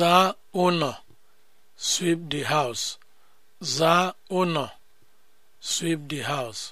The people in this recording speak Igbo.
zaa ụnọ sweep the house house